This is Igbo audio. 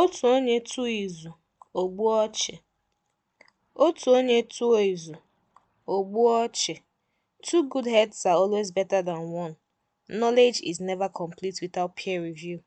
Otu onye tụọ izu, ogbuo gbuo ọchụ. Otu onye tụọ izu, o gbuo Two good heads are always better than one. Knowledge is never complete without peer review.